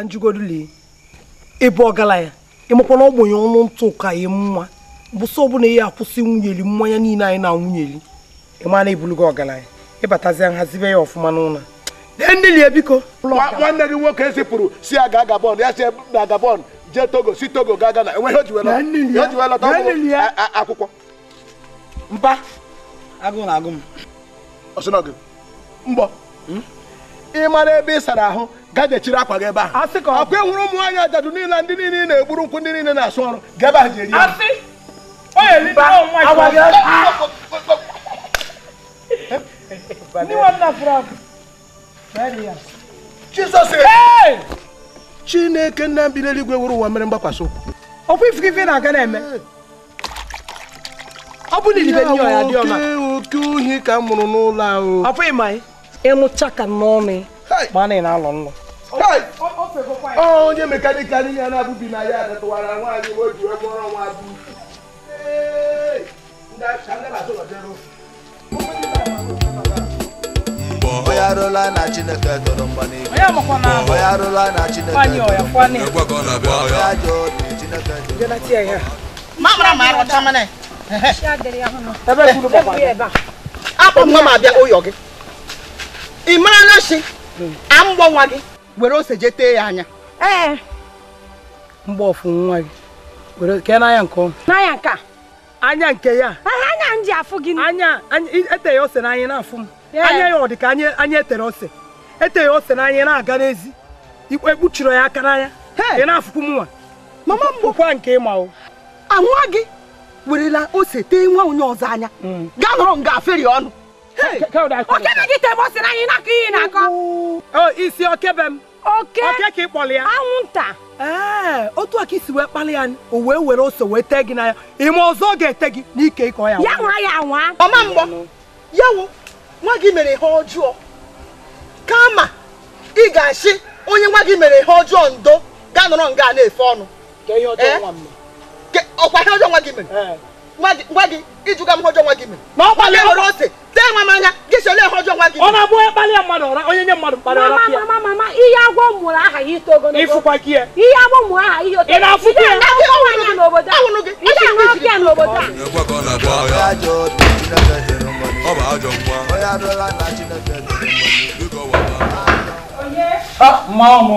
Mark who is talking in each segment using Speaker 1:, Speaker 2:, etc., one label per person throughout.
Speaker 1: ka njugodu lee ebe ọ ya ịmakwa na ọ ọnụ ntụ ka ya mma bụsọ ọbụla ihe akwụsị nwunyeli mmanya niile anyị na nwunyeli ịma na ebulugo ọgaranya ịbatazia nhazibe ya ọfụma n'ụlọ nnelie biko nwanne gị nwoke zipụrụ e si ya gabon ya si na gabon jee togo si togo ga gana enweghị o ji wee lọta akwụkwọ mba agụ na agụ m ọsịnọgị mbọ hmm? ị mara ebe ị sara ahụ gajechiri akwa gị ebe a ọkwa ị ụmụ anya ajadu niile ndị niile na-egburu nkwụ ndị niile na-asụ ọrụ ga ebe ya eh! chineke nna m n'eluigwe wuru ụwa mere mgbakwasị ụkwụ na-aga na-eme ọ bụ na ibe ya dị ọma oke ohi ka m mụrụ n'ụlọ ahụ emuchaka mmomi mana ị na-alụ nnụ oh, onye mekaniki anyị ya na-abụbi na ya adọtụwara nwaanyị o ji nwa bụ
Speaker 2: onye arụla na chineke tọrọ mgba n'igwe onye arụla na chineke tọrọ mgba n'igwe onye ajọ
Speaker 1: obi chineke tọrọ mgba n'igwe ebe kwuru papa akpọ mma ma abịa ụyọ gị ị mara na shi hmm. a mgbọ nwa gị were ose je tee ya anya ee mgbe ọfụ nwa gị were kee n'anya nke ọma n'anya nke a anya nke ya anya nji afụ gị anya eteghị ose n'anya na-afụ m anya ya ọ dị ka anya etere ose eteghị ose n'anya na-aga n'ezi ekpuchiri e ya aka n'anya ị na-afụkwu nwa mama mgbokwa nke ịma o anwa gị werela ose tee nwa onye ọzọ anya hmm. gaa nọrọ nga aferi ọnụ okebe gị tebe o si na anyị na-akọ ihe na-akọ oh, isi okebe m oke ka ị kpọrọ ya anwụnta ee eh, otu aka isi wee kpali ya o wee were ose wee tee gị n'anya ime ọzọ ọ ga-ete gị n'ike ịkọ ya ya nwa ya nwa ọma mgbọ ya wo nwa gị mere ihe ọjọọ kama ị ga asị onye nwa gị mere ihe ọjọọ ndo ga nọrọ nga na-efe ọnụ eh? ọkwa ihe ọjọọ nwa gị mere eh. gwa gị ịjụga m ọjọọ nwa gị mere ma ọ kpalịa ọrụ ose tee nwa m anya gị sole ihe ọjọọ nwa gị ọ na-abụ kpalịa mmadụ e ọra onye nye mmadụ mkpara ọra pịa mama mama ihe agwọ mụrụ aha ya ito ogologo ịfụkwa gị ya ihe agwọ mụrụ aha ihe oto ị na-afụkwa ya ahụrụ gị ị ga-anwe ọkịa n'obodo a ọ
Speaker 2: bụ ajọ
Speaker 1: nwa mma ọmụ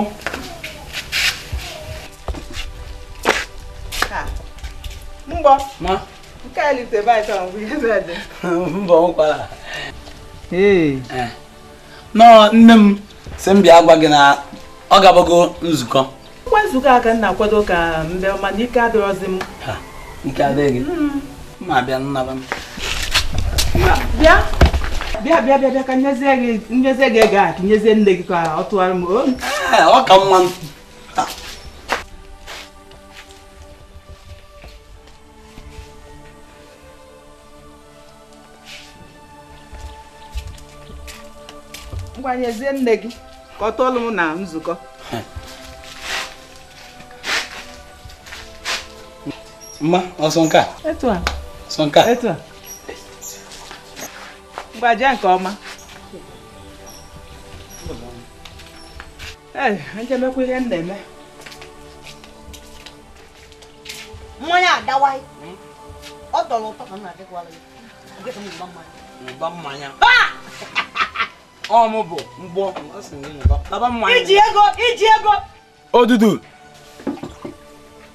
Speaker 1: mgbọ ma nke a lite baịta mbụ ihe eh. zede mbọ nkwara nọọ nne m si m bịa gwa gị na ọ gabago nzukọ ngwa nzukọ a ka m na-akwado ka mbe mana ike adịrọzi m ike adịghị mm. ma bịa nnaba m bịa bịa bịa bịa bịa ka nyezie gị ego a ka nyezie nne gị ka ọ tụgharị m eh, ọ ka mma ngwanyezie nne gị ka ọ tọọlụ m na nzukọ mma ọsọ nke a ọsọ nke a ngwaja nke ọma ee njemekwa ihe m na-eme mmanya adawaghị ọ tọrọ ụtọ ka m na-adịkwara gị mmanya ọmụ bụ mgbọ iji ego iji ego odudu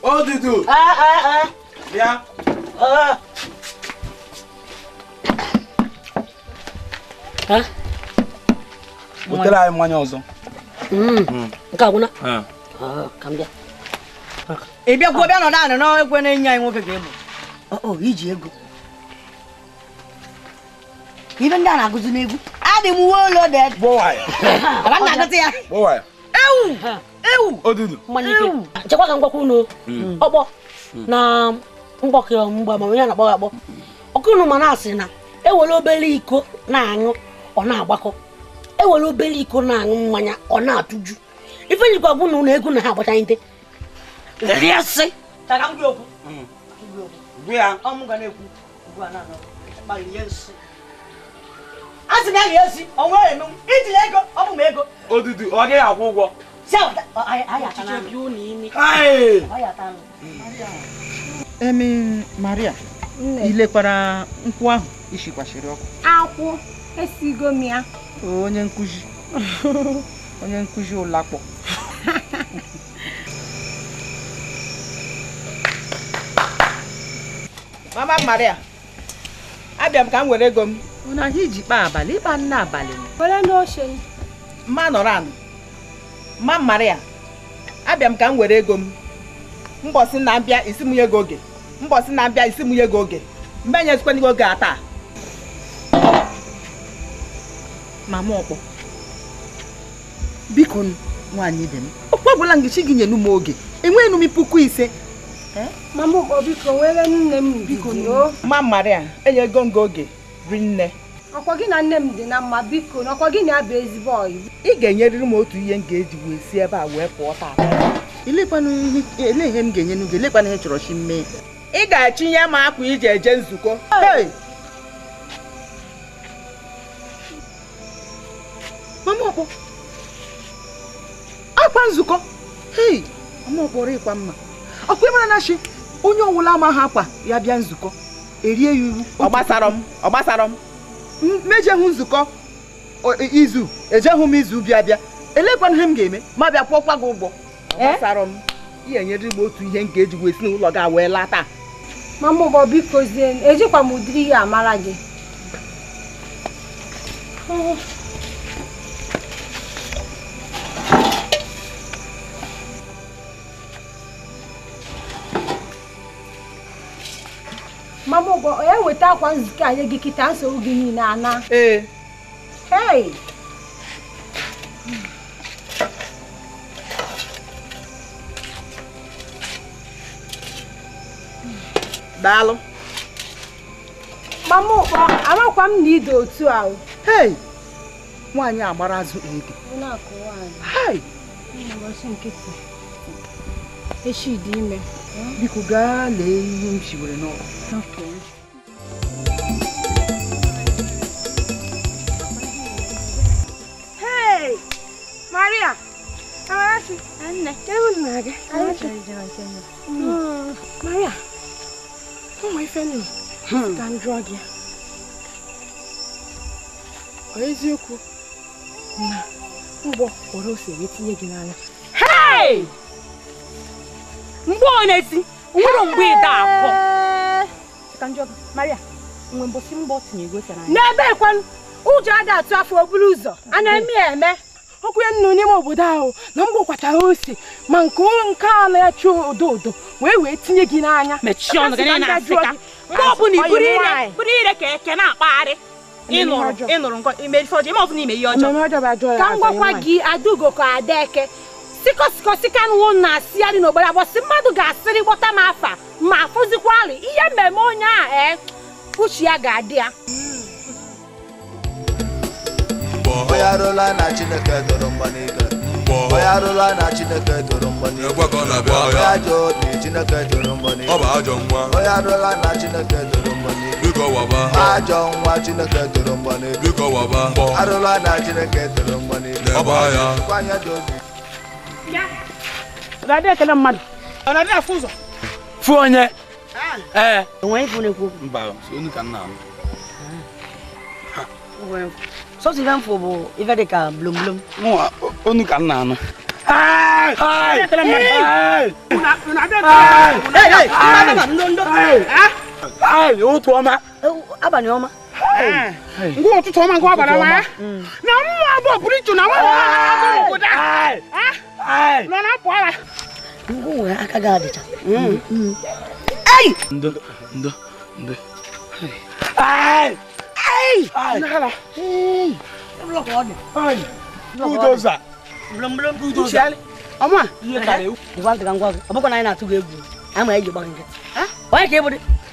Speaker 1: odudu bịa butere anyị mmanya ọzọ hmm. Hmm. nke agwụna ka m bịa ị bịagwuo bịa nọ naanị n'ekwe na-enye anyị nwoke ga-egbo iji ego ibe ndị a na-agụzi n'egwu adị m uwe ụlọ dị na-agụta ya ewu ewu chekwa ka m unu hmm. ọkpọ na mgbakọ mgbe ma onye na ọkụ ụnụ ma na-asị na ewere obere iko na-aṅụ ọ na-agbakọ ewere obere iko na-aṅụ mmanya ọ na-atụju ife bụ na egwu na ha agbachaghị asị na a ga-esi ọnwa eme m itinye ego ọ bụ m ego odudu ọ gaghị akwụ ụgwọ emi maria ilekwara nkwụ ahụ ishikwashiri ọkụ akwụ esigo m ya onye nkụzi onye nkụzi ụlakpọ mama maria abịa m ka m were ego m na anyị iji kpaa abalị ịkpa nne abalị were n'oche mma nọrọ anụ mma mara ya abịa m ka m were ego m mbọsị na-abịa isi mụnye gị oge mbọsị na-abịa isi mụnye gị oge mgbe enyezikwana gị oge a taa mama ọkpọ biko nwaanyị dị m okwu ọbụla ngichi gị nyenu m oge enweghị m puku ise mama ọkpọ biko nwere nne m biko mma mara ya enyego m gị oge rinne ọkwa gị na nne m dị na mma biko na ọkwa gị na abịa ezigbo ọyị ị ga-enyerịrị m otu ihe m ga-eji wee si ebe a wee pụọ taata ele ihe m ga-enye n'ugo elekwana ihe chọrọ chi mmee ị ga-achịnye m akwa iji eje nzukọ mama ọkpọ akwa nzukọ hei mama ọkpọrọ ịkwa mma ọkwa ịmara na chi onye ọwụla ama ha akwa ya bịa nzukọ erie ya uru ọgbasarọ m ọgbasarọ m nzukọ e, izu hụ m izu bịa bịa elekwana ihe m ga-eme ma bịa kwụọkwa gị ụgwọ ọgbasara m nyere m otu ihe m ga-eji wee si n'ụlọ gị wee laa taa mama ụgbọ bikozie ejikwa m ụdịrị ihe amara gị mama ụgwọ onye weta akwa nzukọ anyị gị kịta nsogbu gị niile ana ee hei daalụ mama ụkpọ amakwa m na ide otu ahụ hei nwaanyị agbarazụ ege hei ụbọchị nkịtị echi dị ime biko gaa lee ihe m shiwere n'ọkụ Maria, Amarachi, nne, ewu na-aga. Maria, ụmụ ife nnu, ka m jụọ gị. Ọ eziokwu na mgbọ kpọrọ ose wee tinye gị n'anya. Hey! mgbe onye nwere mgbe ịda akọ n'ebe ekwenụ ụjọ a ga-atụ afọ oburu ụzọ a na-eme ya eme ọkụ ya nnu n'ime obodo ahụ na mgbe kwachara ose ma nke nke ala ya chụọ odo odo wee wee tinye gị n'anya mgbe ọbụla iburu ire ka eke na-akpagharị ịnụrụ ịnụrụ ife ọjọọ ma ọ bụ na ime ihe ọjọọ ka m gwakwa gị adaugo ka ada eke sikọsikọsi ka na-asị arị n'obodo abụọ si mmadụ ga-asịrị gbọta m afa ma afụzikwa arị ihe mmemme onye a e uche ya ga-adị ya
Speaker 2: na chineke toro mgba n'ike onye arụla na chineke toro mgba n'ike onye ajọ obi chineke toro mgba n'ike arụla na chineke toro mgba n'ike
Speaker 1: ajọ ya. kwanye dị obi Nade kana man. Nade afuzo. Fuonye. Eh. Wọ́n fún ku. Mba, so ni kan na. Wọ́n. So si van fobo, ife de ka blum blum. Mo onu kan na no. Ai! Ai! Ai! Una una de. Ei, ei. Una na ndo ndo. Eh? Ai, o tu oma. Abani oma. Ngo o tu oma ngo abana wa. Na mo abo bridge na wa. Ngo da. Ah! nọ na pụọ ala ngwa wee aka gị adịcha ei ndo ndo ndo budoza ọma ngwa ntị ka ngwa gị ọ bụkwa na anyị na-atụ gị egwu anyị ma anyị ji gba gị nkịtị onye ka ị bụ dị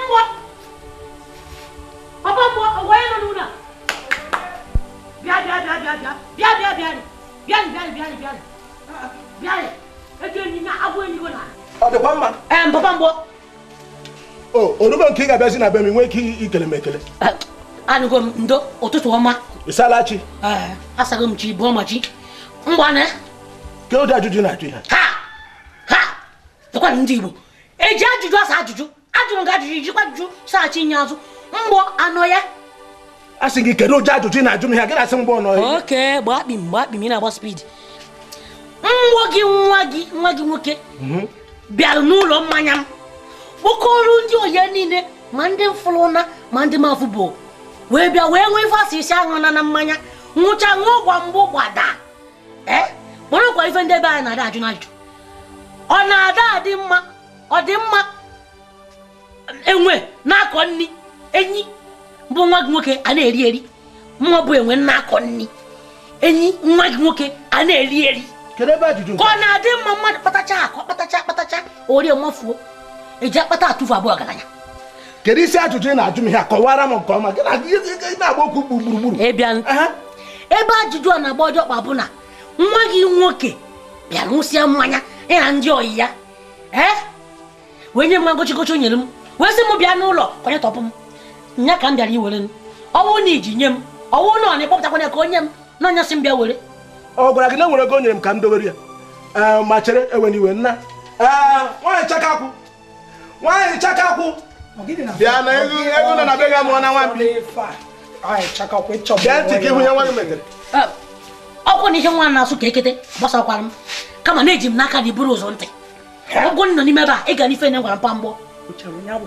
Speaker 1: oroma na ajụjụ oh, oh, na ha ha ndị Igbo eji ajụjụ asa ajụjụ ajụrụ gị ajụjụ ijikwa ajụjụ saghachi nye azụ mgbọ anọ ya a sị gị kedu ụdị ajụjụ na-ajụ m ihe gịnị asị mgbọ nọ ya oke gbakpim gbakpim ị na-agba spidi nwa gị nwa gị nwa gị nwoke mhm. bịara n'ụlọ mmanya m kpọkọrọ ndị oye niile ma ndị mfụlụna ma ndị mafụ bụ wee bịa wee nwee ife asị isi aṅụ na mmanya nwụcha ṅụọ gwa mgbụ gbada ee kpọrọkwa ife ndị ebe anyị na-ada ajụ na-ajụ ọ na-ada adị mma ọ dị mma enwe na-akọ nri enyi bụ nwa gị nwoke a na-eri eri mma bụ enwe na-akọ nri enyi nwa gị nwoke a na-eri eri ka ọ na-adị mma mmadụ kpatacha akọ kpatacha akpatacha orie mafuo eji akpata atụfu abụọ ọgaranya kedu isi ajụjụ ị na-ajụ m ihe kọwara m nke ọma na-agba okwu gburugburu ebe ajụjụ a na-agba ọjọọ kpa bụ na nwa gị nwoke bịa ṅụsịa mmanya ya na ndị ọyị ya ee wee nye m nwa o nyere m wesi m bịa n'ụlọ ka onye tọpụ m nya ka m bịara iwere m ọnwụ na iji nye m ọnwụ na ọna ịkpọpụtakwanye ka onye m na onye sị m bịa were ọ gwara gị na nwere ego nyere m ka m dowere ya ma chere ewen iwe nna nwaanyị chakakwụ nwaanyị chakakwụ bịa na ego nọ na be ga mụọ na nwambi bịa ntị ka ihu ya nwa gị metere ọkwụ na ihe nwa na-asụ ka ekete gbasakwara m kama na-eji m n'aka na iburu ụzọ ntị ọgwụ nọ n'ime ebe a ị ga n'ife na gwara mpa mgbọ ọ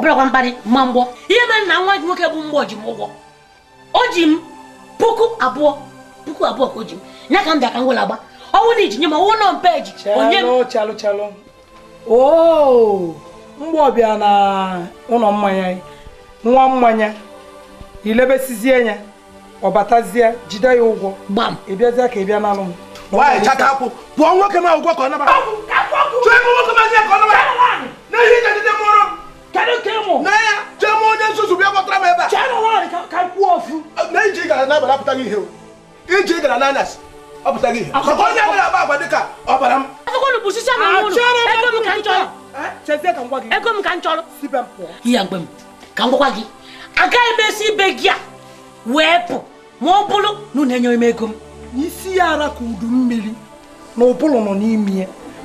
Speaker 1: bụrakwa mkparị ma mgbọ ihe mere na nwa gị nwoke bụ mgbọ ji m ụgwọ o ji m puku abụọ puku abụọ ka o ji m ya ka m bịa ka m ọ na iji nye m ọwụ nọ mpe onye m mgbọ bịa na ụlọ mmanya nwa mmanya ilebesizie ya ọ jide ya ụgwọ gbam ka ị m nwaanyị chata akwụ pụọ nwoke ụgwọ ka ọ nabata ị ga ndị mụrụ m kedu ka ịmụ na ya chee onye nzuzu bịa kpọtara m ebe a chere nwaanyị ka kwuo na iji gara n'abalị apụtaghị ihe iji gara n'anyasị ọpụtaghị ihe onye gara agba agba dịka ọbara m ego m ka m chọrọ ya mgbe m ka m gwakwa gị agaghị m esi ibe gị a wee pụ ma ọ bụrụ na unu enyere m ego m n'isi ya ara ka udu mmiri na ụbụrụ nọ n'ime ya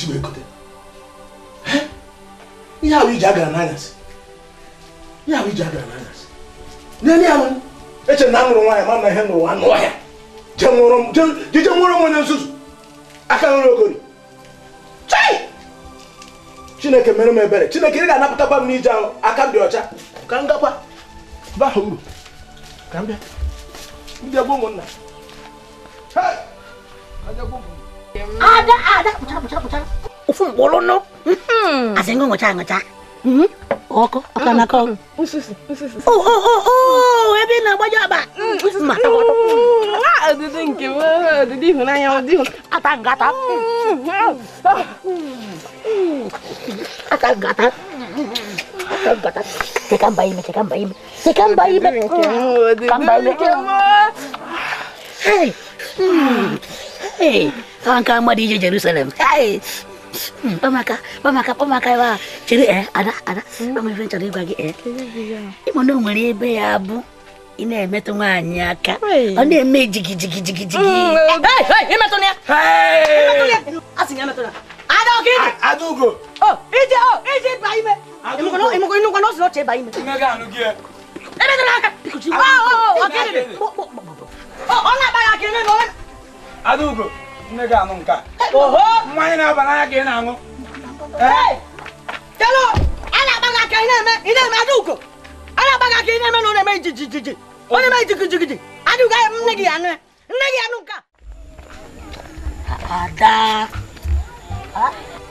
Speaker 1: isi wee gote ihe ahụ iji agara n'anyasị ihe ahụ iji agara n'anyasị n'elu ya eche na anụrụ nwaanyị ma na ihe nụrụ anụ ọhịa jije nwụrụ m onye nzuzu aka nwere ogori chineke mere m ebere chineke ị ga-anapụtakwa m n'ije ahụ aka dị ọcha ka m gakwa baha ka m bịa ndị ụmụnna ajagbo ada ada bucara bucara bucara ufum bolono asengo ngocha ngocha oko akana ko oh oh oh oh ebe na agbaje aba ma adịdị nke adịdị ịhụnanya ụdị ata ngata ata ngata ata ngata cheka mba ime cheka mba ime cheka mba ime ka mba ime Hey! Hey! ka mmadụ ije Jerusalem hmm, kpamaka kpamaka kpamaka ebe eh, a chere ee ada ada amaife chọrọ ịgwa gị ee ịma na o nwere ebe ya bụ ị na-emetụ nwaanyị aka ọ na-eme jigijigijigijigi nne gị aṅụ nke a mmanya na-aba n'anya ka ị na-aṅụ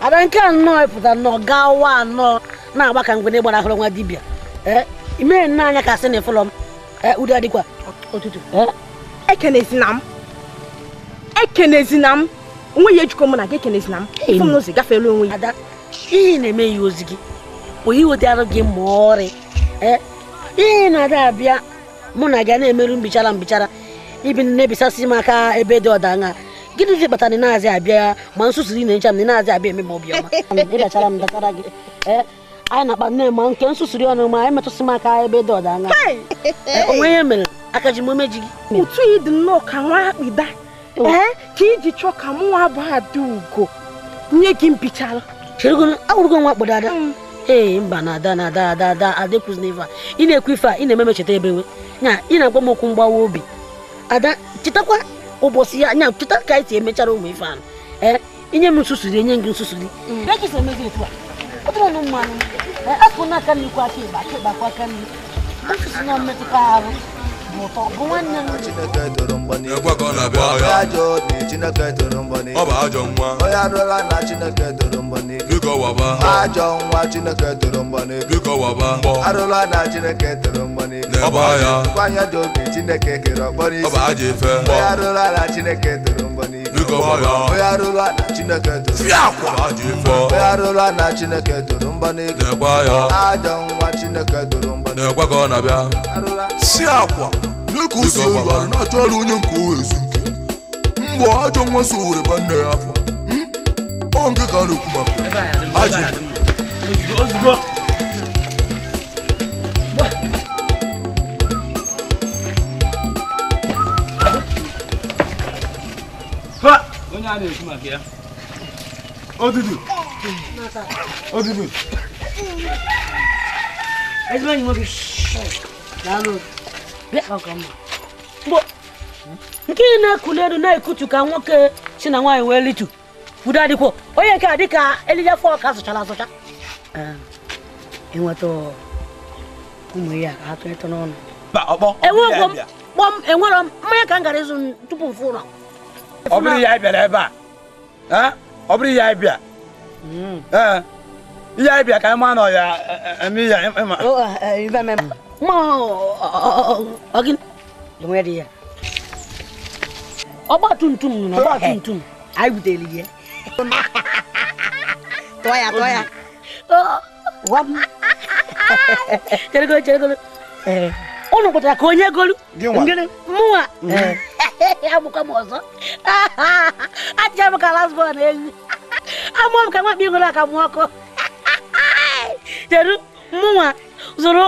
Speaker 1: ada nke anọ pụtara na ọ gaa wa anọ na-agba ka mgbe gbara ahụrụ nwa dibịa eh? imee nne anya ka sị na ịfụlọ m eh, udo adịkwa ụtụtụ ekenesi eh? e na m ekenezina m onwe ya ejikọ m na gị ekenezina m ife m n'ụzọ gafere onwe ya ada ihe na-eme ya ozi gị bụ iwetara gị ma ọrị e? ihe na-ada abịa mụ na gị na-emerụ mbichara mbichara ibi na-ebisasị m aka ebe dị ọdanya gịnịzi kpatara ị na-azị abịa ma nsusu ị na m na na-azị abịa eme m obiọma ịbachara m datara gị e? anyị na-akpa nne ma nke nsusuri ọnụ ma anyị metụsị m aka ebe dị ọdanya e, onwe ihe mere aka ji m omeji gị ụtụ yi dị nnọọ ka nwa akpịda Oh. ee eh? ka iji chọọ ka mụ nwa bụ ada ugo nye gị mbichala awụrụgo nwa kpọdo ada mm. ee mba na ada na ada ada ada adekwuzina ife a ị na-ekwu ife a ị na-eme mecheta ebewe nya ị na-agwa m okwu mgbawa obi ada chetakwa ụbọchị ya nya cheta ka anyị si emechara ụmụ ife ahụ ee eh, inye m nsusuri enye gị nsusuri mm. mmanụ eh, akụnụ aka nri kwa aka ịba aka ịbakwa aka nri nsusu na mmetụta arụ ọ bụ
Speaker 2: ajọ nwa onye arụla na chineke toro mgbani ajọ nwa chineke toro arụla na chineke toro mgbani dị obi chineke kere ọkpọrọ isi onye arụla na chineke toro arụla na chineke toro mgba n'ego aja nwa chineke na mgba si akwa n'ịka na-achọ ọrụ onye nke owe ezu mgbe ajọ nwa so were ya afọ hmm? ọ nke
Speaker 1: ka a a na-ekwu nwoke nke ị na-ekuli elu na-ekutu ka nwoke si na nwaanyị wee litu udo adịkwuo onye nke a dị ka elile fọ ka asụchara asụcha enweta ụmụ ya enwerọ mmanya ka m gara ịzụ tupu m fụ ọbụrụ ya bịara ebe a ọbụrụ ya bịa ihe anyị bịa ka ịma na ọya eme ya ịma ọgba tumtum nụ n'ọgba tumtum anyị butere ya tụọ ya tụọ ya cheregolo cheregolo ụnụ kpatara ka onye golu mụnwa agbụkwa m ọzọ achịcha m ka lasbọn ewu amụọ m ka nwakpa ịṅụrụ aka mụ ọkụ jeru mụnwa zụrụ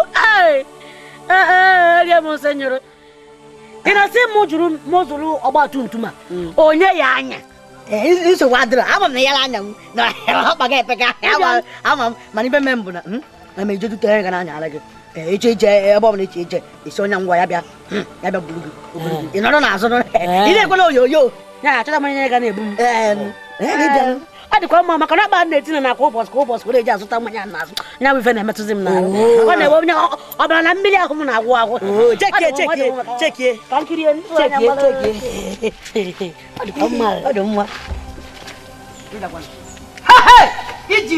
Speaker 1: rie m nsị nyụrụ ị na sị m jụrụ m zụrụ ọgba tum tum a onye ya anya nsogbu adịrọ ama m na ya anya m na ọkpa ga-epeka ama m mana ibe me m bụ na emejedute ya ga na anya ara gị đi eche eche ebe ọ bụla eche eche esi onye ngwa ya bịa ya bịa buru gị ị nọrọ n'azụ ị na-ekwela oyoyo ya achọta mmanya ya ga na-ebu m ọ dịkwa mma maka na akpa na-etinye na kwa ụbọchị kwa ụbọchị were eji azụta mmanya n'azụ nya bụ ife na-emetụzi m n'ahụ ọ na-ewe onye ọ bịara na mmiri ahụ m na-agwụ agwụ chekie chekie chekie ka nkiri chekie chekie ọ dịkwa mma ọ dị đi iji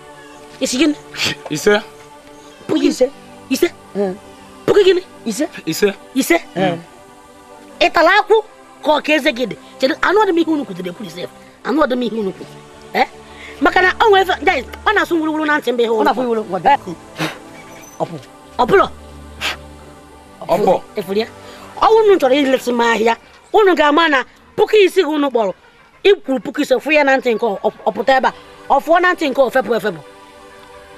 Speaker 1: Isi gini? Ise. Pugi ise. Ise. Pugi gini? Ise. Ise. Ị tara akwụ ka ọ ka eze anụ ọdịm ihe ise. Anụ ọdịm ihe Maka na ọ na-asụ ihe unu. Ọ Efuru ya. chọrọ ahịa, unu ga-ama na puku isi unu kpọrọ. Ikwuru puku ise fụ ya na ntị nke ọpụta ebe a. Ọ na ntị nke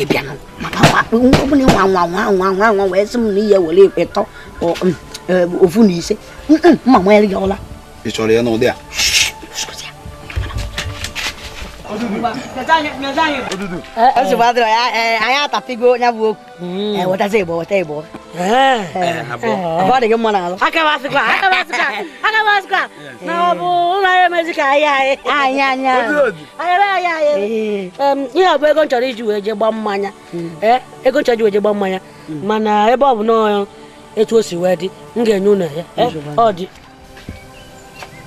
Speaker 1: ebi ano maka wa nkɔbu ne nwanwanwanwanwanwa wɔ ɛsɛm ne yɛ wɔle ɛtɔ ɔ ɔfu ne ise mma mo ɛyɛ ɔla.
Speaker 2: ìsɔrɔ yɛ n'o de a.
Speaker 1: nsogbu anyị atapigo ya bụ okwu wetazi igbo weta igbo ọ dị gị mma n'alụ na ọ bụ ụlọ anyị emezi ka anyị anyị anyị anyị ihe bụ ego nchọrọ iji wee je gba mmanya hmm. eh, ego nchọrọ iji wee je gba mmanya hmm. mana ebe ọ bụ n'ọya etu o si wee dị m ga-enye ụnọ ya eh, ọ dị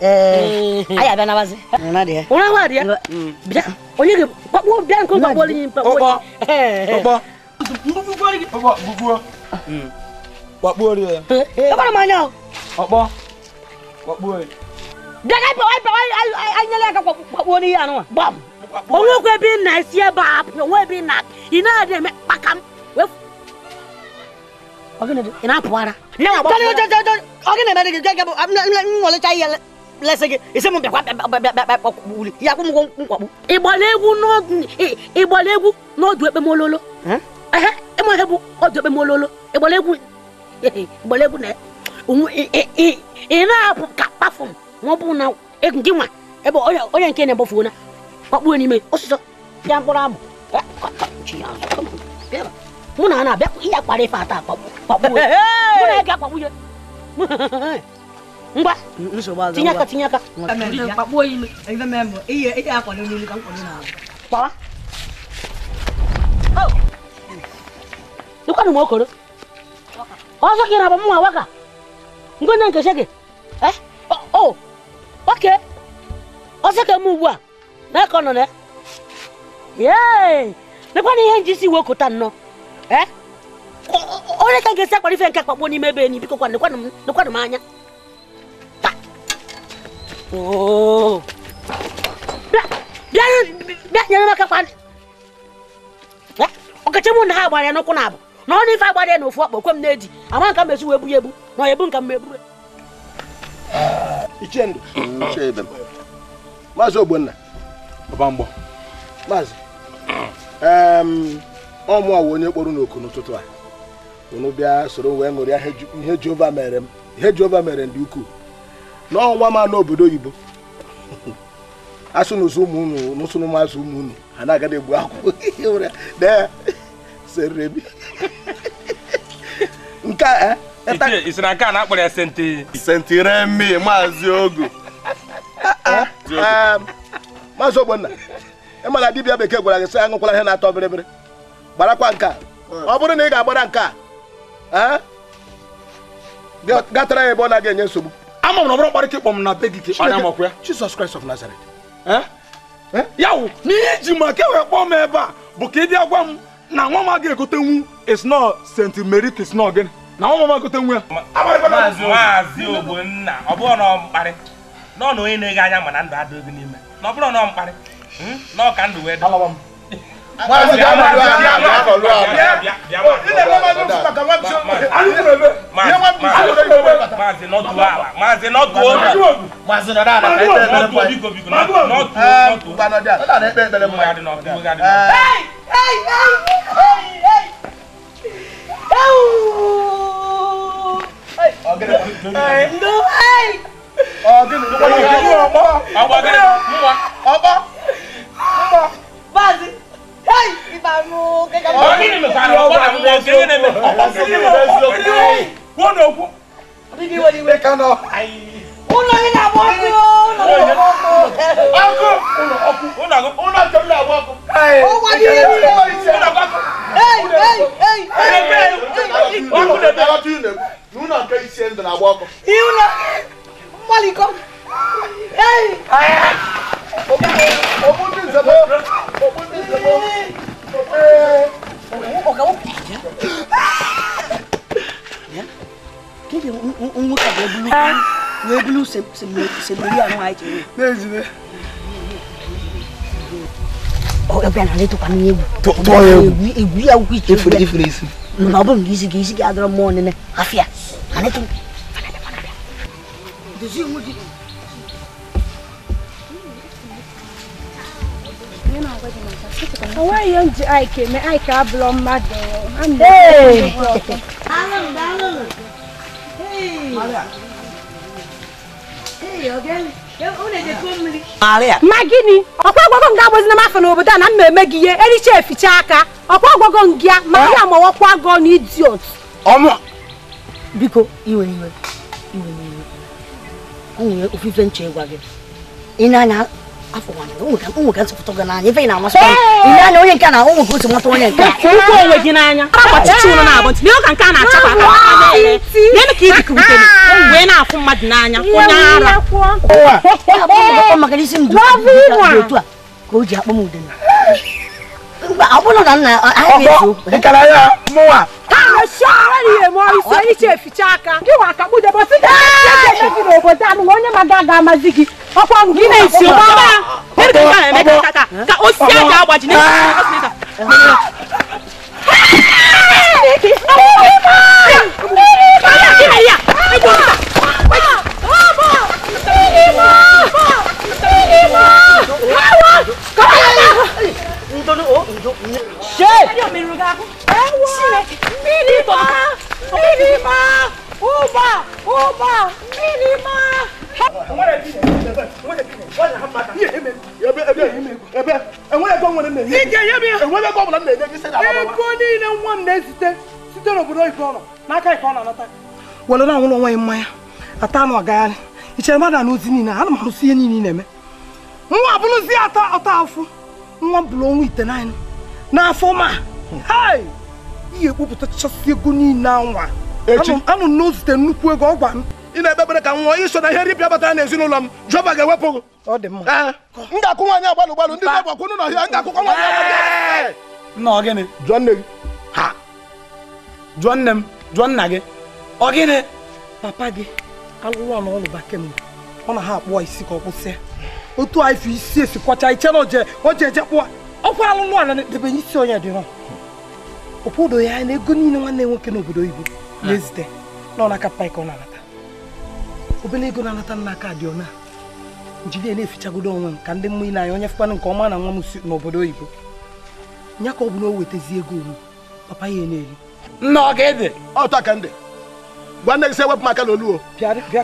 Speaker 1: Eh, ayi mm. mm. mm. e, e, a bɛ naba se. nana deɛ. o nana deɛ. bila o ye ko bila ko ka bɔli ɲini. o bɔ o bɔ. bubu bɔli. o bɔ bubu. wa bɔli yɛ. e kɔni ma ɲɛ o. o bɔ wa bɔli. daga bɛ wa bɛ wa ɲɛlɛ ka wa bɔli yan wa. bɔn o wo ko e bɛ na seɛ ba o wo bɛ na i n'a yɛrɛ mɛ kpakam ogene ina puara na ba ta ta ta ogene na de ga ga ngole chai yele lesị gị isi m bịakwa ya kwụ m ụgwọ nkwagbu egwu n'ọdụ ekpemololo ịma ihe bụ ọdụ ekpemololo ịgbara egwu ịgbara egwu na ị na-apụ ka m ma ọ na gị nwa ebe onye nke na-egbofuo na n'ime ọsụsọ pịa mkpụrụ mụ na a na-abịa ihe ife ata mụ na ya ngwa tinye aka tinye aka kpawa ịkwanụ oh. m okoro ọzọ gị na mma waka ngwe nne gị oke ọsọ ka m ugbu a na ka ọ nọ na nekwana ihe nji isi iwe okota nnọọ eh? onye ka ga-esi nke akpakpo n'ime ebe enyi biko kwanụ m anya bịa nyere m aka ha gbara ya n'ụkwụ na abụ na ọ na ife agbara ya na ofu ọkpọ kwe na-eji ama nka mezi wee bu ebu na ọ ebu nka mma Maazị Ogbonna Maazị ọ onye kpọrọ n'oku n'ụtụtụ a unu bịa soro wee ṅụrịa ihe Jehova mere m ndị ukwuu n'ọnwa ma n'obodo oyibo asụ n'ụzọ ụmụ unu n'ụsụ n'ụmụazụ ụmụ unu ha na-agada egbu akwụkwọ dee serebi nke a eh? isi na nke a na-akpọrọ ya senti sentiremi maazị ogu ah, ah, um, maazị ogbonna ịmana dibịa bekee gwara gị sị aṅụkwala ihe na-atọ bịrịbịrị gbarakwa nke a ọ bụrụ na ị ga-agbara nke a eh? gatara ya ebe ọ na-aga enye nsogbu ama m na ọbụrụ kparịka ịkpọ m na be gị ka ịkpara makwa ya Jesus Christ of Nazareth ya wụ n'ihe ma ka ewee kpọọ m ebe a bụ ka ị agwa m na nwa m agaghị egotenwu is not St. Mary is not gịnị na nwa m egotenwu ya maazị Ogbonna ọ bụrụ na ọ mkparị nọ na onye na-ege anya ma na ndụ adịghị n'ime na ọ bụrụ na ọ mkparị hmm, na ọ ka ndụ wee dị wọn a ti dá màlúwa àná màlúwa àná. ilé wọn máa ń lọ bàtà wọn ti sọ àlù tó lọ bẹ wọn ti sọ lọ yóò bẹ bàtà. máa ṣe nọ́ọ̀tù wa máa ṣe nọ́ọ̀tù o. máa ṣe nọ́ọ̀tù àná ẹgbẹ́ bẹ̀rẹ̀ mọ́ ẹ. nọ́ọ̀tù nọ́ọ̀tù gbanadé àná ẹgbẹ́ bẹ̀rẹ̀ mọ́ ẹ. ọ̀gẹ̀dẹ̀ ọ̀gẹ̀dẹ̀ ọ̀gẹ̀dẹ̀ ọ̀gẹ̀dẹ̀ ọ̀gẹ̀dẹ̀ ọ̀gẹ̀dẹ̀ Ai, ibanu gẹ́gẹ́ bá. Oni ni mi fa ro ba mo gẹ́gẹ́ ni mi. Oni mo bẹ so. Wo no ku. Bigi wo ni we kan o. Ai. Uno ni na bo ku o, no bo ku. Aku, uno aku, uno aku, uno to na bo ku. Ai. O wa ni ni o ni se. Uno aku. Ei, ei, ei. Ei, ei. Aku na da tu ne. Nu na ka isi ndo na bo ku. Iu na. Mali ko. Ei. Ai. Obu, obu ni se bo. Obu ni webulu sebiri àwọn àìtì rẹ. méjì ni. ọ ẹgbẹ́ náà létò kan ní ewu. tọ́ ọ yẹ ewu. ewu yà wù kìí. efere efere esi. nínú abọ́ mi kìí sigi kìí sigi adọ́rọ̀ mọ́ nínú àfíà àná tó. dèjì ń wúdi. Ọwọ́ yẹn ń jẹ àìkè mi àìkè abúlọ̀ mmadụ. ma gịnị ọkwa ọgwọgọ nga abụzina m afọ n'obodo a na m eme gị ihe ericha eficha aka ọkwa ọgwọgọ ya ma ya ma ọkwa gọ na idiot biko iwe iwe iwe iwe o nwere ofufe nche ịgwa gị ị na-anya afọ ụmụ ka nsụpụta ga n'anya anyị ị na-amasị ile anya onye nke na ụmụ ka o nwata onye nke ụkwụ onwe gị n'anya na-abụ ntị ka nke a na-achapụ aka nenu ka ibikụ bute ah! wee na-afụ mmadụ n'anya onye ara maka isi m otu a ka o ji akpọ m udene ọbụna na nna ahụ nkara ya mụwa mechara ihe ma isi ehicha eficha aka gị nwa ka kpụdebe si gị n'obodo a nụwa onye ma ga-aga amazi gị ọkwa gị na-esi ka osisi aja agbaji e na anwụrụ onwe ya mmanya ata anụ agagharị i chere mmadụ na ozi niile ana m arụsi ihe niile na-eme nwa bụrụzi ata ọta afụ nwa bụrụ ọnwa ite naanị n'afọ ma ihe ekpopụta ego niile nwa anụ nọ zite nnukwu ego ọ nwa na ihe ripịa ga-ewepụ m na ga nna gịnị jụọ nne gị ha jụọ ọ gịnị papa gị alụrụ ọnụ ọlụba kemgbe ọ na ha akpụọ isi ka ọ kwụsịa otu anyị fi isi esi kwacha iche na oje oje eje kpụọ ọkwa alụrụ ọnụ na-edebanye isi onye dịrọ obodo ya na ego niile nwanne nwoke n'obodo oyibo na-ezite na ọnaka paịka ọ na-anata obere ego na-anata n'aka dị ọna njiri na-efichagodo onwe m ka ndị mmụọ ile anya onye fụkwana nke ọma na nwa m si n'obodo oyibo ya ka ọ bụ na o wetazi ego olu papa ya na-eri nna ọ ga-ede ka ndị gwa nne gị sị ewepụ m aka n'oluo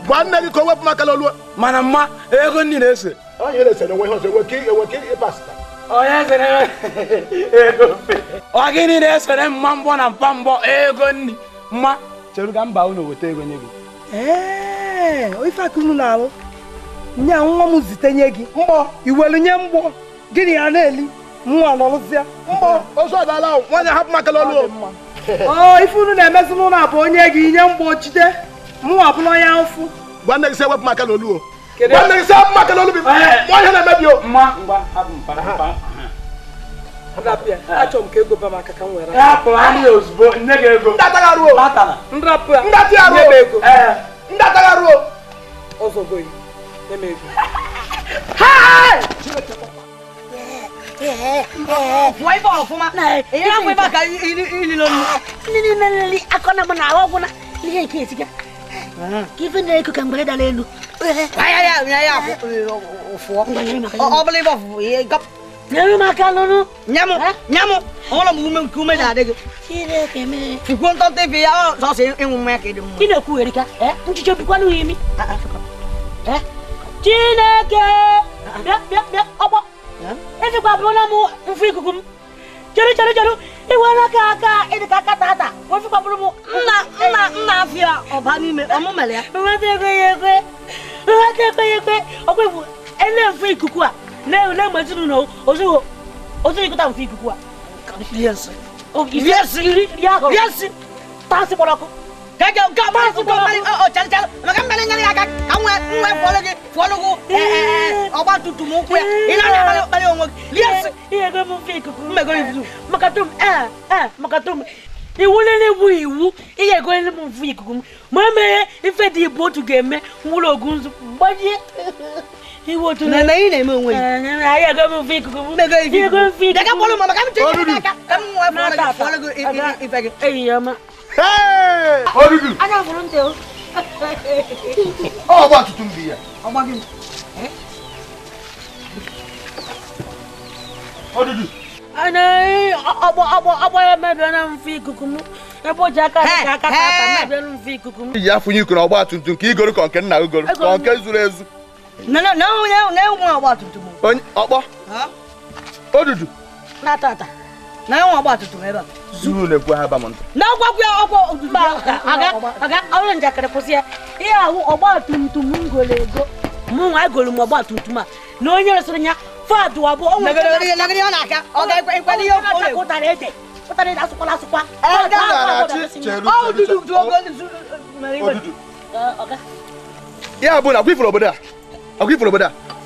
Speaker 1: gwa nne gị ka o wepụ m aka n'oluo mana mma ego nri na-ese ọ gịnị na-esere mma mbọ na mpa mbọ ego nri mma cheru ga mba unu weta ego nye gị ife aka unu na-alụ nye nwa m zite nye gị Mbọ, iwelu nye mgbọ gịnị ya na-eli nwa nọrụzie Mbọ, ozu ọdala nwaanyị hapụ m aka n'oluo oo ife unu na-emezi n'ụlọ bụ onye gị inye mgbochite mụnwa bụla onye ụfụ gwa nne gị sị maka n'olu gwa gị sị maka n'olu bụ ihe na-emebi o achọrọ m ka ego ba aka ka m were ndatagharuo ọzọ goyi nye m ego waiva ofuma ila kuivaka ililoni nininali akona mwana awo kuna liyekiesika kivendele kukangbaleda lenu obuleva gap nyamu makalonu nyamu nyamu ola mume kume da de kire keme fikon tante bi ya so se enwume ke de mu kine ku erika eh nchicho bi kwanu yimi eh chineke bia bia bia obo esi kwa bulu mu nfu kukum. m jeru jeru jeru iwe nwoke aka ịdịka aka tata ofu kwa bulu mu nna nna nna afịa ọba n'ime ọmụmere ya nweta ekwe ya ekwe nweta ekwe ya ekwe ọkwa iwu ele mfu ikuku a na-ewu na-egbeji n'ụlọ ozuwo ozu ikụta mfu ikuku a iri esi iri iri iri aka iri esi taa si kpọrọ ọkụ kɛkɛ ka ma su ko mali ɔ cali cali mɛ ka mɛlɛ ɲani ka ka ka ŋɛ ŋɛ fɔlɔ ke fɔlɔ ko ɛɛ ɛɛ ɔ b'a tu tumu kuyɛ i n'a yɛrɛ bali bali ŋɔ liya se. i yɛrɛ mun f'i kuku. n bɛ ko i dusu. makatum ɛɛ ɛɛ makatum i wulili bu iwu i yɛrɛ ko ne mun f'i kuku maa mɛ i fɛ di bo tu gɛmɛ n wolo ogun su bɔji. iwo tu ne. i nɛ mɛ o wele. ɛɛ a yɛrɛ ko mun f'i kuku. n bɛ ko i f'i kuku. daga bolo ma ma k'an bɛ to ɲɛna kan. k'an bɛ ŋɔ i fɛ kɛ o dudu. ana furu n tɛ o. ɔ b'a tutu n bi yan. o ma gɛn. o dudu. ana ɔbɔ ɔbɔ ɔbɔ yɛ mɛ bɛn na n kukumu e b'o ja ka ka ka ta mɛ bɛn na kukumu. i y'a fɔ n y'i kunna o b'a tuntun k'i gori kɔnkɛ na o gori kɔnkɛ zuru ezu. ne ne ne ne ne ŋun a b'a tuntun. ɔbɔ o dudu. n'a ta na enwe ọgba tutum ebe a zuru na-ekwu ha ba m ntụ na ọgwagwu ya ọgwọ ozugbo aga aga ọrụ njakịrị kwụsị ya ihe ahụ ọgba tumtum m goro ego mụ nwa egoro m ọgba tumtum a na onye resịrị ya fadụ abụ ọ nwere ụtara ede ụtara ede asụkwala asụkwa ya bụ na agwa ifuru obodo a agwa ifuru obodo a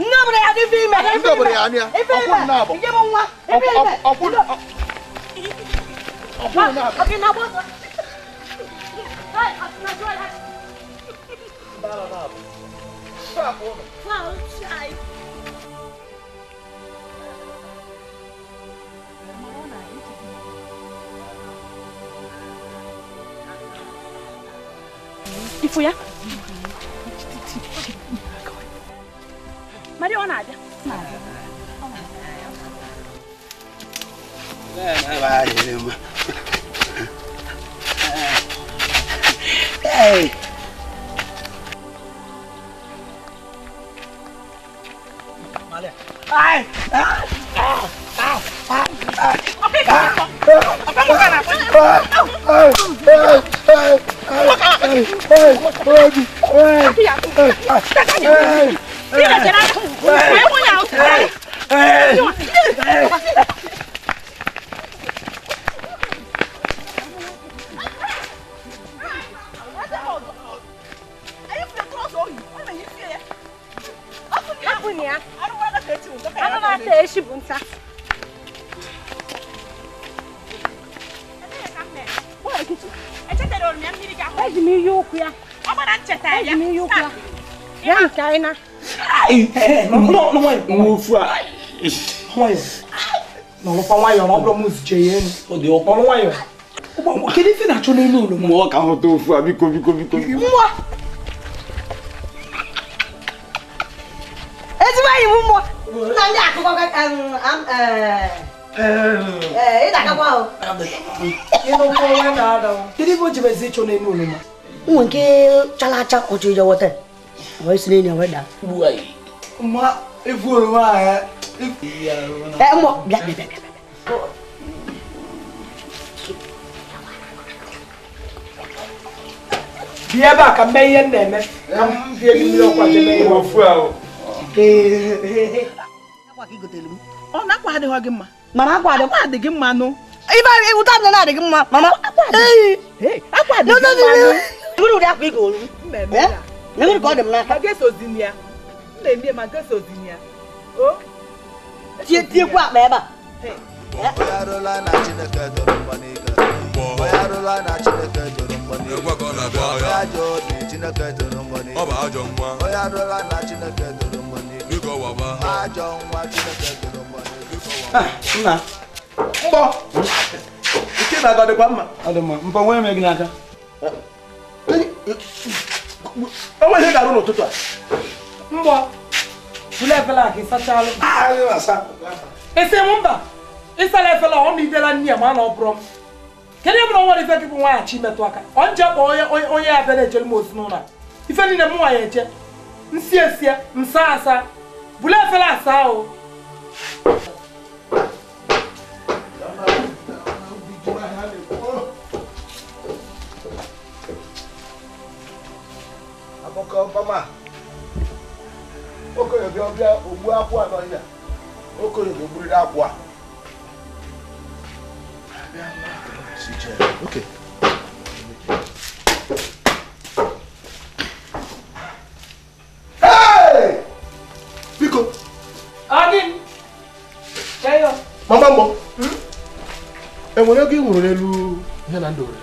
Speaker 1: Nobre ya di fi é? me. Nobre ya ni ya. Ọkùnrin náà bọ̀. Ìjẹ́ mo ń wá. Ọkùnrin náà bọ̀. Ọkùnrin náà bọ̀. Bala náà bọ̀. Sáà bọ̀ mi. Fáwọn ṣáì. Ifuya. Maria ou vai,
Speaker 2: Nada. Ei!
Speaker 1: Malha! Ai! Ai! Ai! Ai! Ai! Ai! Ai! Ai! Ai! 你来进来，我我要进来。哎，Ejimi yokwu ya. Ọ gbara ncheta ya. Ejimi yokwu ya. Ya nke anyị na. É, não, não é. Não é. Não é. Não, não fala aí, não é pra música não né? Fodeu. Não, não é. Que ele vira chulei não Mó carro não fua, bico, não bico. Mó. não vai, mó. Não, já, tu vai, um, um, é, ele tá acabando. Ele não foi nada. Ele vai te ver chulei nulo, mano. Um que chala chala o chujo o te. Vai se nem vai dar. Vai. ma efu ahụ
Speaker 2: efu bịa na-eme
Speaker 1: ka m fie gị mmiri ọkwa jebe ihe ofu ahụ ọ na akwa adịghị gị mma mama gi mma nụ ibe ụta na gi mma mama mma ka để miệng mà cơ sở gì nhỉ? Ơ? Chia chia quạ bé bà. Thế.
Speaker 2: Ọba ajọ nwa. Biko waba. Ajọ nwa Chineke doro mgbani.
Speaker 1: Biko waba. Nna, mbọ. Nke na-aga dịkwa mma. Ọ dị mma, mbọ nwee mee gị mbọ bulu efela a k'i sachalụ ah, ese mụ mba ịsala efela ọ ma idela nne ya ma na ọ bụrụ m kedu ebe na nwere ife gị bụ nwaanyị chi metụ aka ọ nje kpọ onye ya bịa na-ejere m osi n'ụlọ ife niile m nwaanyị eje nsi esie nsa asa bulu efela asa o Abọ́kọ̀ ọbọ̀mà. okenye bịa ọbịa ogbu akwụ a n'ọhịa okenye ga-egburiri akwụ a Okay. mama mbọ hmm? enwere ego ị nwụrụ n'elu ihe na ndụ were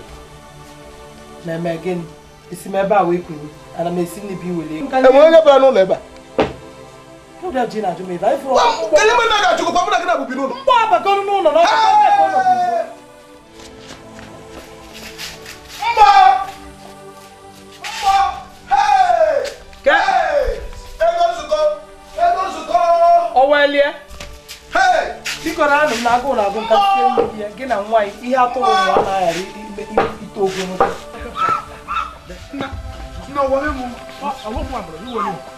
Speaker 1: na-eme gịnị isi m ebe a wee kwuru ana m esi n'ibi were enwere e onye bara n'ụlọ ebe a Ode ji na jume dai fro. Ele me na ga chuko pa muna kina bu binu. Mbo aba ko nu no no. Mbo. Mbo. Hey. Ke. Ego zuko. Ego zuko. Owelie. Hey. Biko na anụ na agụụ na agụ nka site ya gị na nwaanyị ihe atụrụ ụwa anaghara ite ogologo. Nna, nna, wale mụ. Ọ, alụ mụ amụrụ, iwere mụ.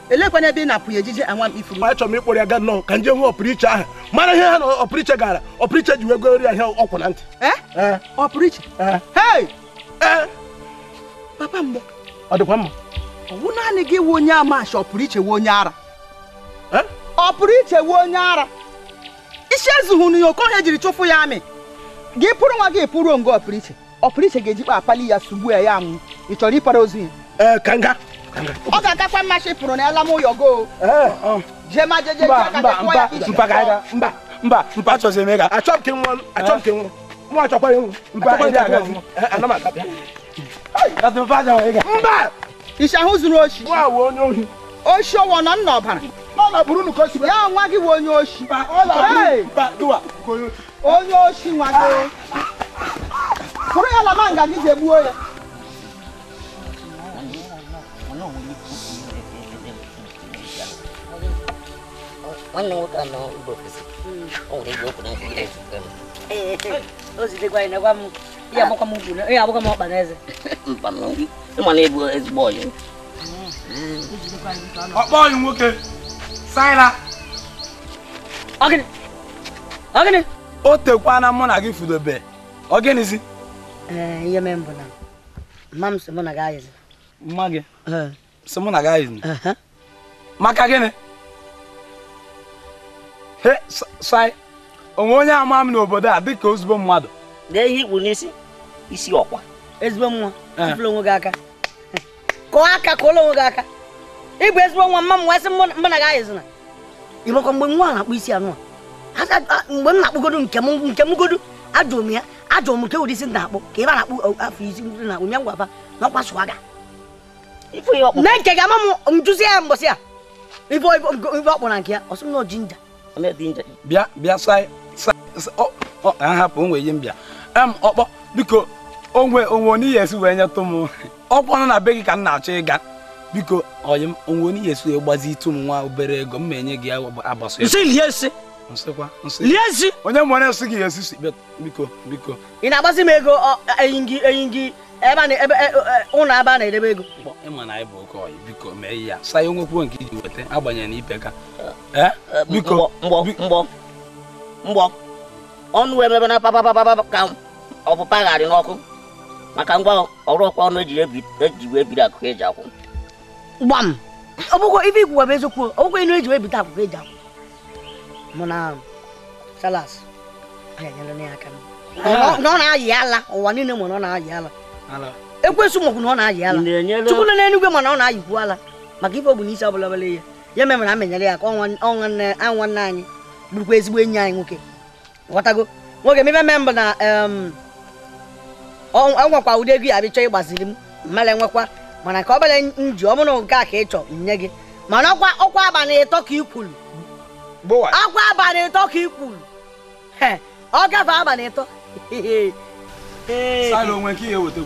Speaker 1: elekwana ebe ị na-apụ ya ejije anwa m ifuru achọrọ m ịkpọrọ ya gaa nnọọ ka nje hụ ọpụrụiche ahụ mara ihe ha na ọpụrụiche gara ọpụrụiche ji wee goro ya ihe ọkwụ na ntị eh? Eh? ọpụrụiche eh? papa mbọ ọ dịkwa mma ọwụ naanị gị wụ onye amachi ọpụrụiche wụ onye ara ọpụrụiche wụ onye ara isi ezughị n'ihe okohe jiri chụfụ ya amị gị pụrụ nwa gị pụrụ ngo ọpụrụiche ọpụrụiche ga-ejikpa akpali ya sugbu ya ya anwụ ị chọrọ ịpara ozu ya ee ka nga ọ ga-agakwa mma chịpụrụ na ala m ụyọgo eh, jee ma jeje mba mpa achọghị eme ka achọ nke nwa achọ nke nwa nwa achọkwara ịnwụ mba ndị agazi eh, ana m mba ịsha ahụ zuru oshi nwa wụ onye ohi oshi ọwọ nọ nna ọbara ya nwa gị onye oshi onye oshi nwa gị ah! ya lama nga gị ya nwanne nwoke a mba ofesi o okwu na nke na ihe m na eze na ezigbo ọyị ọkpa ọyị nwoke saịla ọgịnị o tekwana mụ na gị fudobe ọgịnịzi ihe mee mbụ na mma m mụ na mma na gị ayịzi sai onwe onye ama m n'obodo a dịka ozugbo mmadụ dee ihe ikpu n'isi isi ọkwa ezigbo nwa eh. tụfụrụ onwe gị aka kọọ aka kụọla onwe gị aka ịbụ ezigbo nwa mma m wee sị mụ na gị ayịzina ịmakwa mgbe nwa na-akpụ isi anụ a mgbe m na-akpụgodo nke m godo ajụrụ m ya ajụrụ m nke ụdị isi na-akpụ ka ebe a na-akpụ afọ isi ndị na-akpụ nye ngwaba na ọkwa sụwa na nke ga-ama m njụzi ya mbọsị a ibe ọkpụ na nke ya ọsụ m nọ jinja bịa bịa ahapụ onwe ihe m bịa em ọkpọ biko onwe onwe n'ihi esi wee nyetụ m ọkpọ nọ na be gị ka m na-achọ ịga biko oyi m onwe onye esi wee gbazi itu m nwa obere ego m ma-enye gị agbaso onye nwere nsị gị esi si, biko biko ị na-agbazi m ego e, enyi gị ebe e, e, ụlọ ebe a na-edebe ego ịma na anyị bụ oke biko mee ya saa onwe nke iji weta agbanyeghị na ipe ka eh? Eh, biko mgbọ ọnụ wee mebe na papapapapa ka ọ bụ n'ọkụ maka ngwa ọrụ ọkwa ọnụ eji wee biri akụkọ eji ọ inu eji wee na salas ala ụwa niile mụ na na-ayị ala ekwensu mọkwụ na ọ na-ayị ala chukwu nọ n'enugwe mana ọ na-ayịkwu ala maka ife bụ n'isi ọbụla bụla ya ya mere na amenyere ya ka ọnwa nwanne anyị bụrụkwa ezigbo enyi anyị nwoke ghọtago nwoke mebe mme mbụ na enwekwa ụdị ego ya bịchọ ịgbaziri m mmara nwekwa mana ka ọ bụla nji ọ bụrụ nke a ka ị chọ nye gị mana ọkwa ọkwa abalị ịtọ ka ikwuru ọkwa abalị ịtọ ka ikwuru ọ gafe abalị ịtọ onwe nke ihe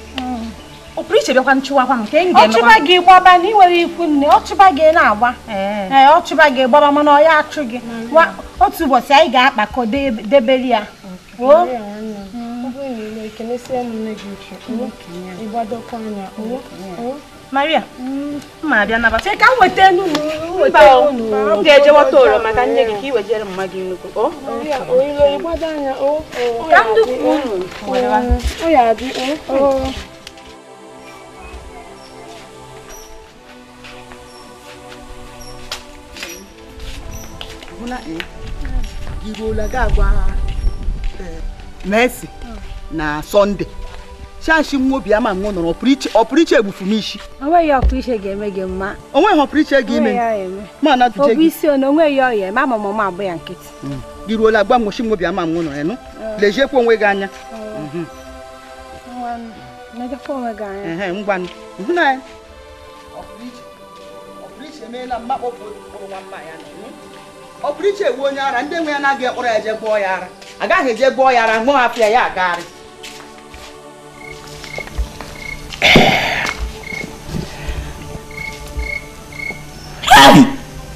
Speaker 1: ọpụrụ ichebekwa nchụwakwa nke m ga-emekwa gị gbaba na nwere ikwu nne ọchụba gị na-agba ee ọchịba gị gbaba mana ọ achụ gị mm. otu ụbọchị anyị ga-akpakọ debere ya maria mm. abịa nabata ka m weta enu gị ka i wejere hụla iruola ga agwa Mercy na Sọnde chachi nwa obi ama nwa nọrọ ọpụrụiche egbufu m onwe onweghị ọpụrụiche ga-eme gị mma onweghị ọpụrụiche ga ime ma na gị isi onweghị ọya ma ma mama abụ ya nkịtị gị mm. gwa nwochi nwa obi ama nwa mm. nọrọ onwe gị anya ọpụrụiche mm. mhm. ọ pụrụ iche ewu onye ara ndị nwe ya na ekpọrọ ya eje gbọọ ya ara agaghị eje gbọọ ya ara nwụọ hapụ ya ya agagharị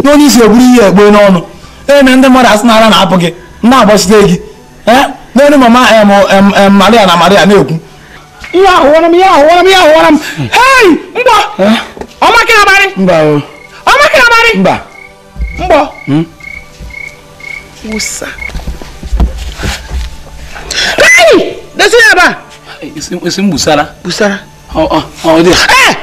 Speaker 1: na onye isi egburu ihe egbe n'ọnụ eme ndị mmadụ asị na na-apụ gị na-agbachite gị n'elu mama maria na maria na-ekwu ihe ahụwara m ihe ahụwara m ihe ahụwara m hei mgbọ ọmakịnabarị mgbọ ọmakịnabarị mgbọ hmm? Wosa. Hey! Desi yaba. Isim busara. Busara. Oh oh oh dia. Eh!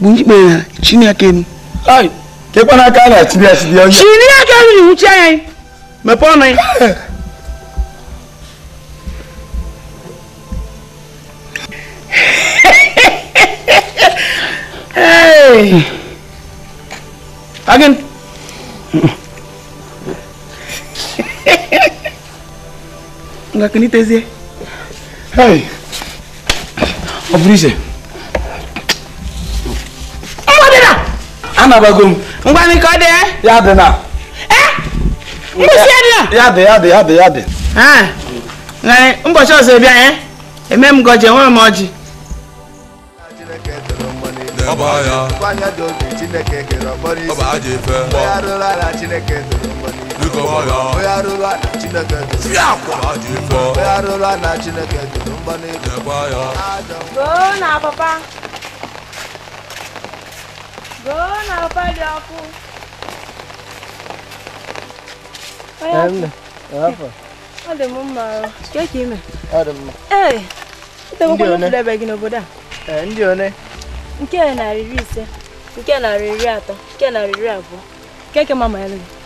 Speaker 1: Bunyi bena chini yake ni. Ai. Kepana kana chini ya chini. Chini yake ni uchi ai. Mepona. nga kinitezie hey ọ bụrụ iche na anabago m ngwa m ka ọ ya dị na mgbụsi ya dị na ya dị ya dị ya dị ya dị ngani ụbọchị ọzọ ebe anyị eme m ngọji enwere m ọjị
Speaker 2: ọba ya ọba aja efe mgbọ onye chineke onye na chineke dịrị mgba
Speaker 1: n'elu ndị one nke narị iri ise nke narị iri atọ nke narị iri abụọ nke ke mama ya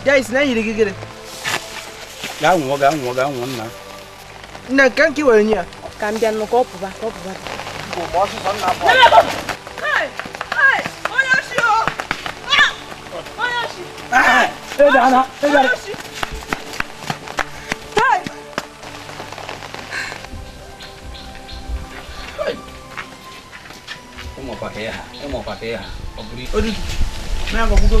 Speaker 1: Dais na yiri gigire. Ya nwo ga nwo ga nwo nna. Nna kan ki were nya. Ka mbia no ko puba ko puba. Ko mo so so na po. Hey! Hey! Oya shi o. Ah! Oya shi. Ah! ah hey dana, hey dana. Hey! Umo pa kaya, umo pa kaya. Obri. Odu. Na ngobugo.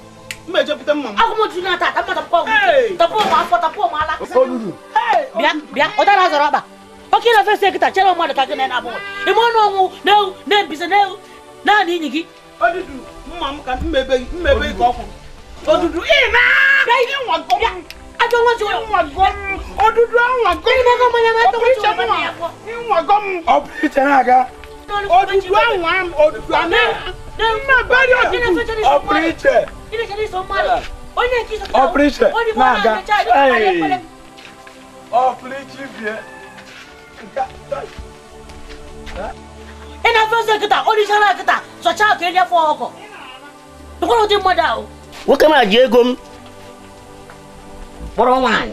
Speaker 1: mmejepụta mma m agụmju na ata ata tapụ m afọ tapụ m ala bịa bịa ụdara zọrọ ọkpa oke na ofesi ekịta chere mmadụ ka gị na abụọ ime ọnụ ọnwụ na na-ebise na-ewu naanị inyi gị mma m ka mmebe ka ajọ m ọ bụ iche na-aga Opriče! Opriče! Naga! Ej! Opriči bje! Ina fɛn se kita orisala kita sɔca kele fɔ kɔ dugukolo ti mɔ da o. o kana je gom. bɔrɔ ŋmaa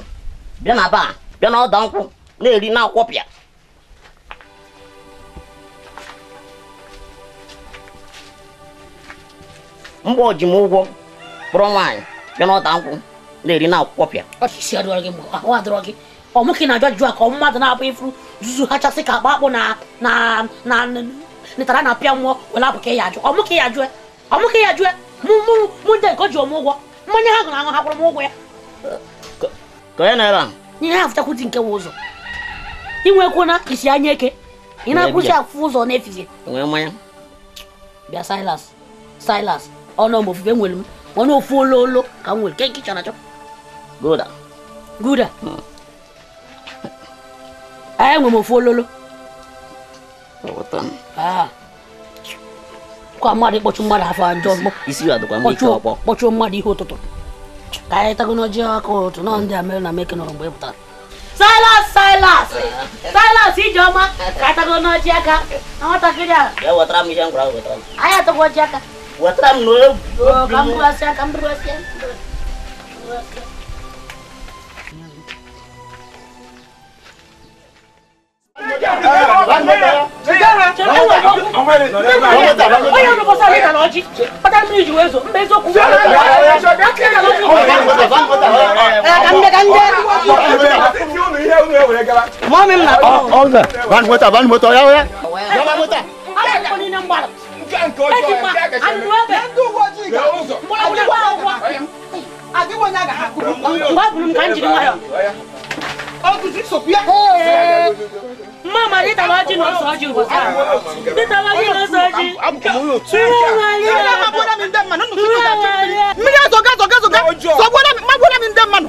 Speaker 1: bila na ba bila na ɔdan kun ne yɛrɛ n'a kɔ pia. mgbe o ji m ụgwọ kpọrọ nwaanyị bịa n'ọta nkwụ na-eri na akwụkwọ pịa ọ ajụjụ a ka ọ mmadụ na-abụ ifuru zuzu hachasị ka akpa akpụ na netara na pịa mmụọ were abụ ka ya ajụ ya e, ya e. mụ nke o ji ụgwọ mmanya ha gụrụ aṅụ ha kwụrụ m ụgwọ ya ka onye na ihe ha fụchakwu nke ụzọ na isi anya eke ị na-akwụsị afụ ụzọ efizi silas ọnụ m ofufe nwere m ọnụ ofu olo ka m nwere ke nke chọrọ achọ guda guda hmm. ee nwe m ofu ololo ah. kwa mmadụ ịkpọchụ mmadụ afọ ajọ kpọchụọ mmadụ ihe ụtụtụ ka anyị tago n'ọjị ọkụ ụtụ nọ ndị a mere na meke nọrọ mgbe ị e pụtara silas silas silas ijeọma ka anyị tago n'ọjị aka nwatakịrị a anyị atagwo ọjị aka wetara m onye ji wee zo mba eziokwu ka nke ọjọọ ya nke akẹkẹ mi. ndị uwe ojii ga ụzọ. adịwa ụwa. adịwa onye a ga-akụrụ mgbe. mgbe abụrụ m ka m jiri nwayọ. ọgụzi sokwu ya. mma ma dịta ọjị na ọsọ ọjị ụbọchị a. dịta ọjị na ọsọ ọjị. mmiri azọga azọga azọga. sọgbuola m mmagbuola m ndị mmanụ.